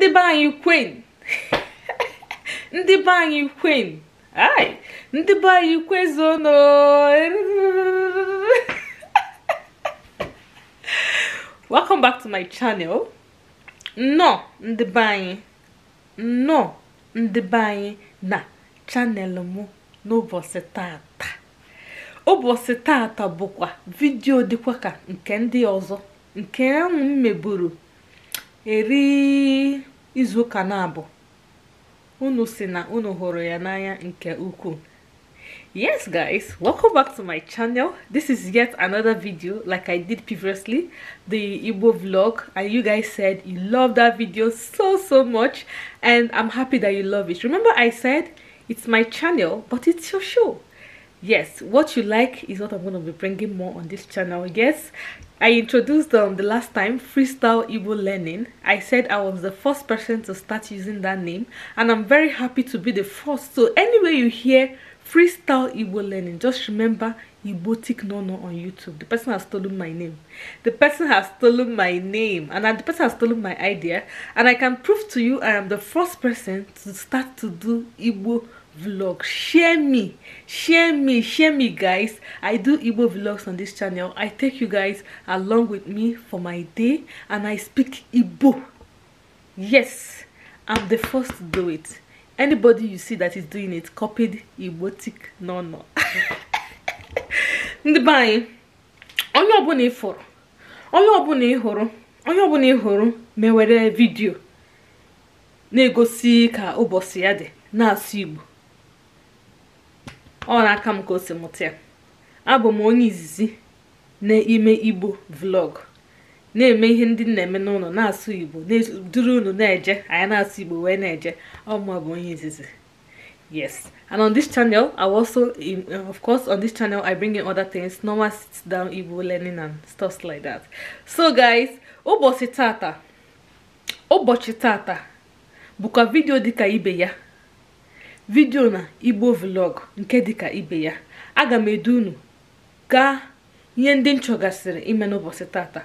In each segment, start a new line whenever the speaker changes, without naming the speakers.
ndị be anyị kwen ndị be anyị kwen ai ndị be anyị kwezono welcome back to my channel nnọọ ndị be anyị nnọọ ndị be anyị na chanel mụ n'ụbọchị taata ụbọchị taata bụkwa vidio dịkwa ka nke ndị ọzọ nke ahụ m meburu eri Izu kanabo. na na-abụ unu si na unu hụrụ ya n'anya nke ukwuu yes guys welcome back to my channel this is yet another video like i did previously the igbo vlog and you guys said you love that video so so much and i'm happy that you love it remember i said it's my channel but it's your show yes what you like is what i'm going to be bringing more on this channel yes i introduced um the last time freestyle Igbo learning i said i was the first person to start using that name and i'm very happy to be the first so anyway you hear freestyle Igbo learning just remember no Nono on YouTube. The person has stolen my name. The person has stolen my name. And the person has stolen my idea. And I can prove to you I am the first person to start to do Igbo vlog share me share me share me guys i do igbo vlogs on this channel i take you guys along with me for my day and i speak igbo yes i'm the first to do it anybody you see that is doing it copied igbotic no no ndị be anyị onye ọbụla ị fụrụ onye ọbụla ị hụrụ onye ọbụla ị hụrụ mewere vidio na-egosi ka ụbọchị ya dị na-asụ igbo ọ na-aka m ka o si mụta ya abụ m onye izizi n'ime igbo vlog na-eme ihe ndị na-eme n'ụlọ na-asụ igbo duru unu na-eje anyị na-asụ igbo wee na-eje ọma bụ onye izizi yes and on this channel i also in, of course on this channel i bring in other things normal sit down igbo learning and stuff like that so guys ụbọchị tata ụbọchị tata bụkwa vidio dịka ibe ya vidiyo na igbo vlog nke dịka ibe ya aga m edu unu gaa ihe ndị nchọgasịrị ime n'ụbọchị tata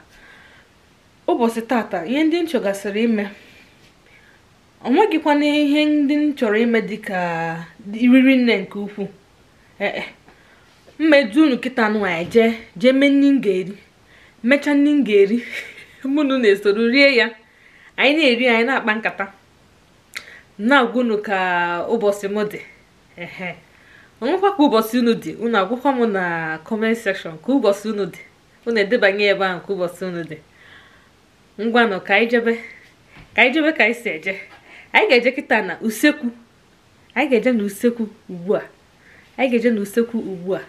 ụbọchị tata ihe ndị nchọgasịrị ime ọ nweghịkwana ihe ndị m chọrọ ime dịka iriri nne nke ukwuu ee mma edu unu kịta nwaanyị e jee jee mee nri m ga-eri mechaa nri m ga-eri mụnụ na-esoro rie ya anyị na-eri anyị na-akpa nkata na-agwụnụ ka ụbọchị m dị ọnwụkwa ka ụbọchị unu dị unu agwụkwa m na kọment sekshọn ka ụbọchị unu dị unu edebanye ebe ahụ ka ụbọchị unu dị ngwanụ ka anyị jebe ka anyị jebe ka anyị si eje anyị ga-eje kịta na usekwu anyị ga-eje na usekwu ugbu a anyị ga-eje na usekwu ugbu a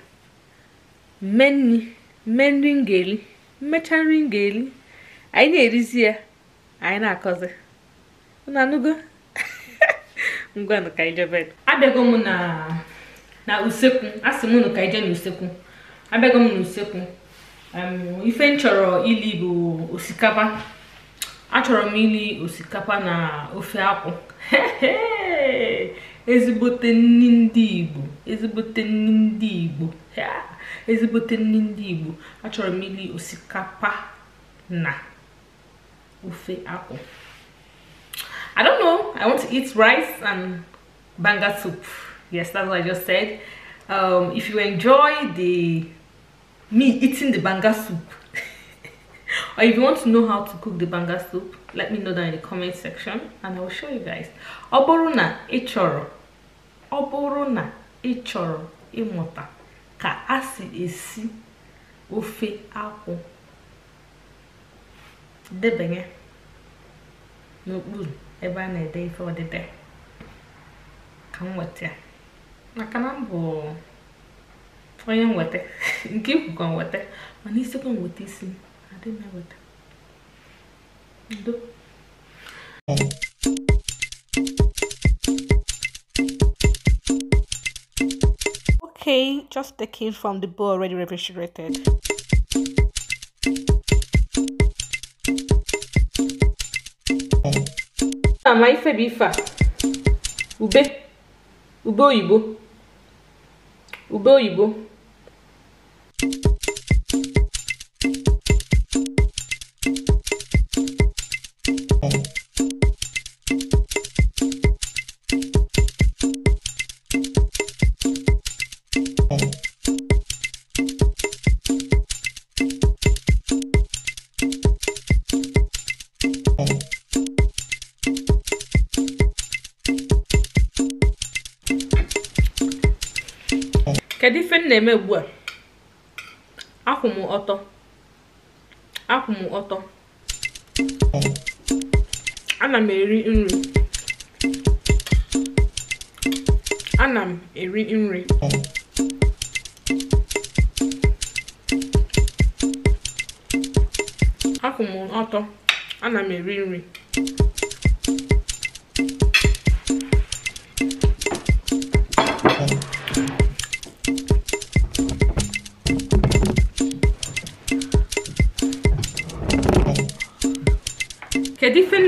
mme nri mme nri m ga-eri mmecha nri m ga-eri anyị na-erizi ya anyị na-akọzi unu anụgo ngwanụ ka anyị abịago m na na usekwu asị m unu ka anyị n'usekwu abịago m n'usekwu ife m chọrọ ili bụ osikapa achọrọ m ili osikapa na ofe akwụ ezigbote nni ndị igbo ezigbote nri ndị igbo ezigbote nri ndị igbo achọrọ m ili osikapa na ofe akwụ I don't know. I want to eat rice and banga soup. Yes, that's what I just said. Um, if you enjoy the me eating the banga soup or if you want to know how to cook the banga soup, let me know down in the comment section and I will show you guys. Oboruna bụrụ oboruna ị imota ọ bụrụ na ị chọrọ ịmụta ka a si esi ofe akwụ debanye n'okpuru ebe a na-ede ife odide ka m weta maka na m bụ onye nweta nke ikwukọ nweta mana isikwa nweta isi adị m eweta ndo okay just the kid from the bowl already refrigerated ama ife bụ ife a ube ube oyibo ube oyibo na-eme ugbu a akwụ m ọtọ akwụ m ọtọ ana eri nri ana ọtọ ana m eri nri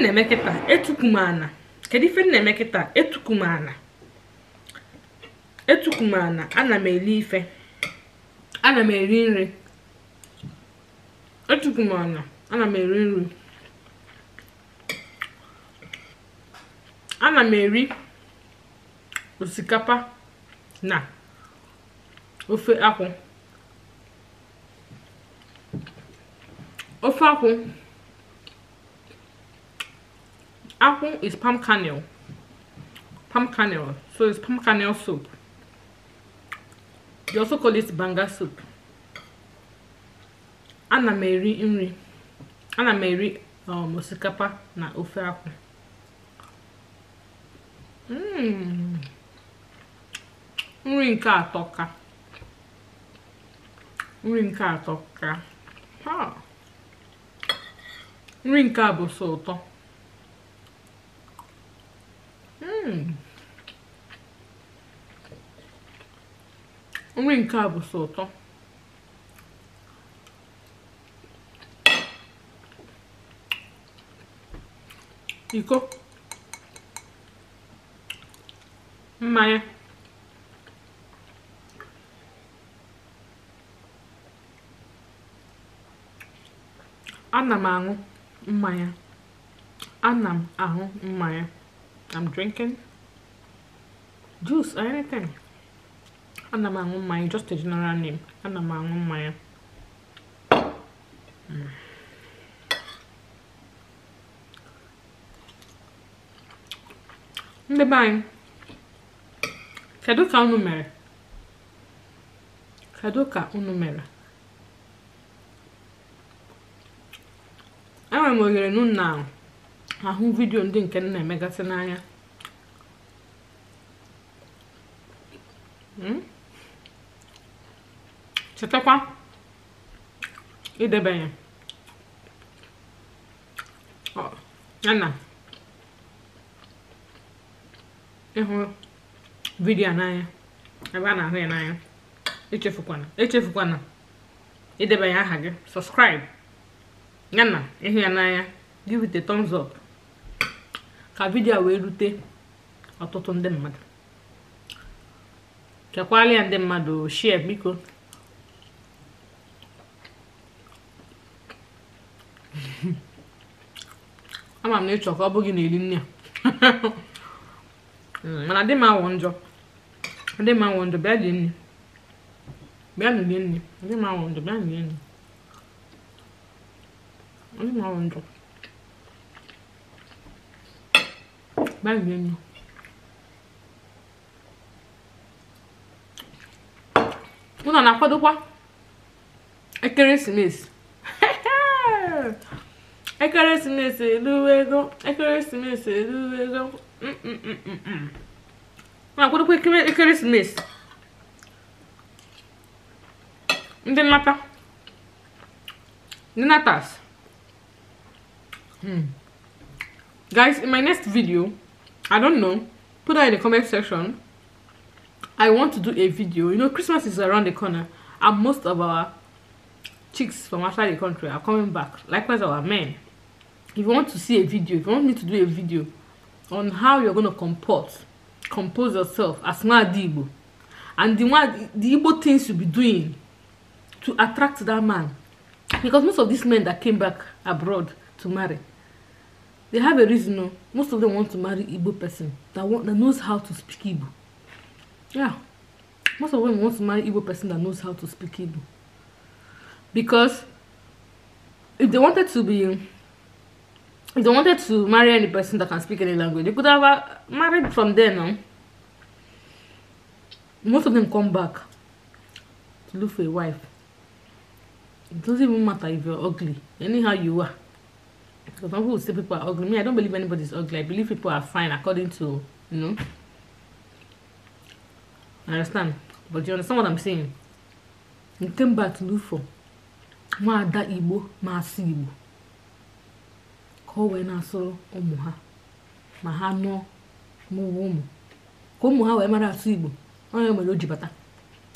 na-eme kịta etuku m ana kedu ife m na-eme kịta ana m eli eri nri ana m eri nri osikapa na ofe akwụ ofe akwụ Apple is palm kernel. Palm kernel. So it's palm kernel soup. They also call it banga soup. Ana m eri nri. Ana m eri um, osikapa na ofe akwụ. Mmm. Nri nke atọ ka. Nri nke atọ ka. Ha. Nri nke a bụ ụtọ. Hmm. nri nke a bụ sọ ụtọ iko mmanya ana m aṅụ mmanya ana m aṅụ mmanya I'm drinking juice or anything. Ana m aṅụ mmanya, just a general name. Ana m aṅụ mmanya. Mm. Ndị be anyị, kedu ka unu mere? Kedu ka unu mere? Enwere m oghere n'ụlọ ahụ. ahụ vidiyo ndị nke nna emegasị n'anya hmm? chetakwa idebanye yana ịhụ vidiyo n'anya ebe a na-ahụ ya n'anya echefukwana echefukwana idebanye aha gị subscribe yana ịhụ ya n'anya give it a thumbs up ka vidio a wee rute ọtụtụ ndị mmadụ chekwala ya ndị mmadụ shie biko ama m na ịchọ ka ọ bụghị na eri nne mana dị m awụ njọ dị m awụ njọ bịa dị nne bịa nụlie nne dị m awụ njọ bịa nụlie nne dị m awụ njọ bem-vindo! báyìí lẹ́nu Una na-akwado kwa ekeresimesi ekeresimesi eluwe ego ekeresimesi eluwe ego na-akwado kwa ekeresimesi ndị nnata ndị natas guys in my next video I don't know. Put that in the comment section. I want to do a video. You know, Christmas is around the corner, and most of our chicks from outside the country are coming back. Likewise, our men. If you want to see a video, if you want me to do a video on how you're going to comport, compose yourself as Mwadibo, and the, Mwad, the Igbo things you'll be doing to attract that man. Because most of these men that came back abroad to marry, they have a reason no most of them want to marry igbo person that want that knows how to speak igbo yeah most of them want to marry igbo person that knows how to speak igbo because if they wanted to be if they wanted to marry any person that can speak any language they could have uh, married from there no? most of them come back to look for a wife it doesn't even matter if you're ugly anyhow you are Because some people say people are ugly. Me, I don't believe anybody's ugly. I believe people are fine according to, you know. I understand. But you understand what I'm saying? You came back to look for nwaada Igbo masị Igbo ka o wee na-asụrụ ụmụ ha ma ha nụọ n'ụwa ụmụ ka ụmụ ha wee mara asụ Igbo onye mere o ji bata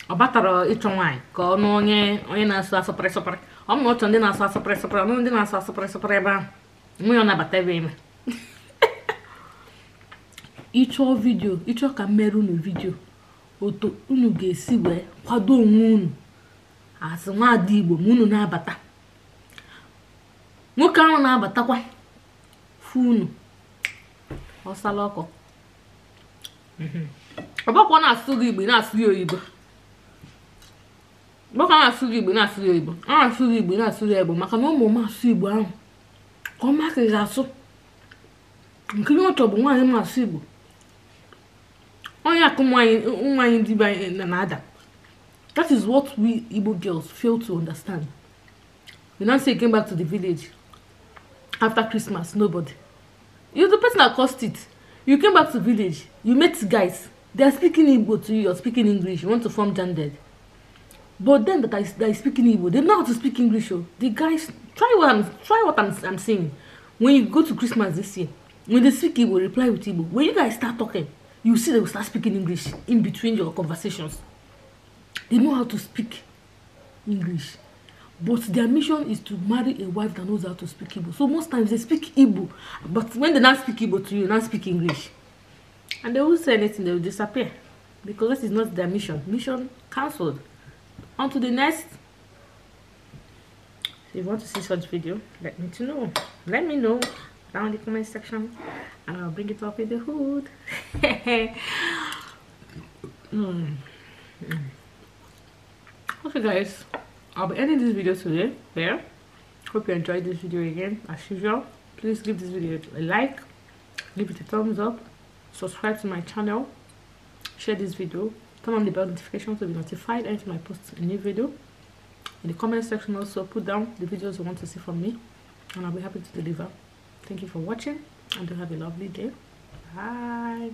ọ batara ịchọ nwaanyị ka ọ nụọ onye onye na-asụ asụpịrị sụpịrị ọ ma ọ chọrọ ndị na-asụ asụpịrị sụpịrị ọnụ ndị na-asụ asụpịrị sụpịrị ebe ahụ nwe ya nabatara ime ịchọọ vidio ịchọ ka m mere unu vidio otu unu ga-esi wee kwado onwe unu asị nwaada igbo ma unu na-abata nwoke ahụ na-abatakwa fụ unu ọsala ọkọ ọbakwa na-asụ gị igbo na-asụ ya oyibo ọbakwa na-asụ gị igbo na-asụ ya oyibo a na-asụ gị igbo na-asụ ya igbo maka na ụmụ m asụ igbo ahụ ka ọ maka ihe asụ nke ihe ọtọ bụ nwaanyị masụ igbo onye akụ nwaanyị dibịa na-ada that is what we igbo girls fail to understand You know, say came back to the village after christmas nobody you the person that cost it you came back to village you met guys they are speaking igbo to you you're speaking english you want to form gendered but then that are, that are speaking igbo they know how to speak english oh the guys try what i'm try what i'm i'm saying when you go to christmas this year when they speak igbo reply with igbo when you guys start talking you see they will start speaking english in between your conversations they know how to speak english but their mission is to marry a wife that knows how to speak igbo so most times they speak igbo but when they not speak igbo to you not speak english and they won't say anything they will disappear because this is not their mission mission cancelled on to the next If you want to see such video, let me to know. Let me know down in the comment section and I'll bring it up in the hood. mm. Okay guys, I'll be ending this video today there. Hope you enjoyed this video again as usual. Please give this video a like, give it a thumbs up, subscribe to my channel, share this video, turn on the bell notification to be notified anytime I post a new video in the comment section also put down the videos you want to see from me and i'll be happy to deliver thank you for watching and do have a lovely day bye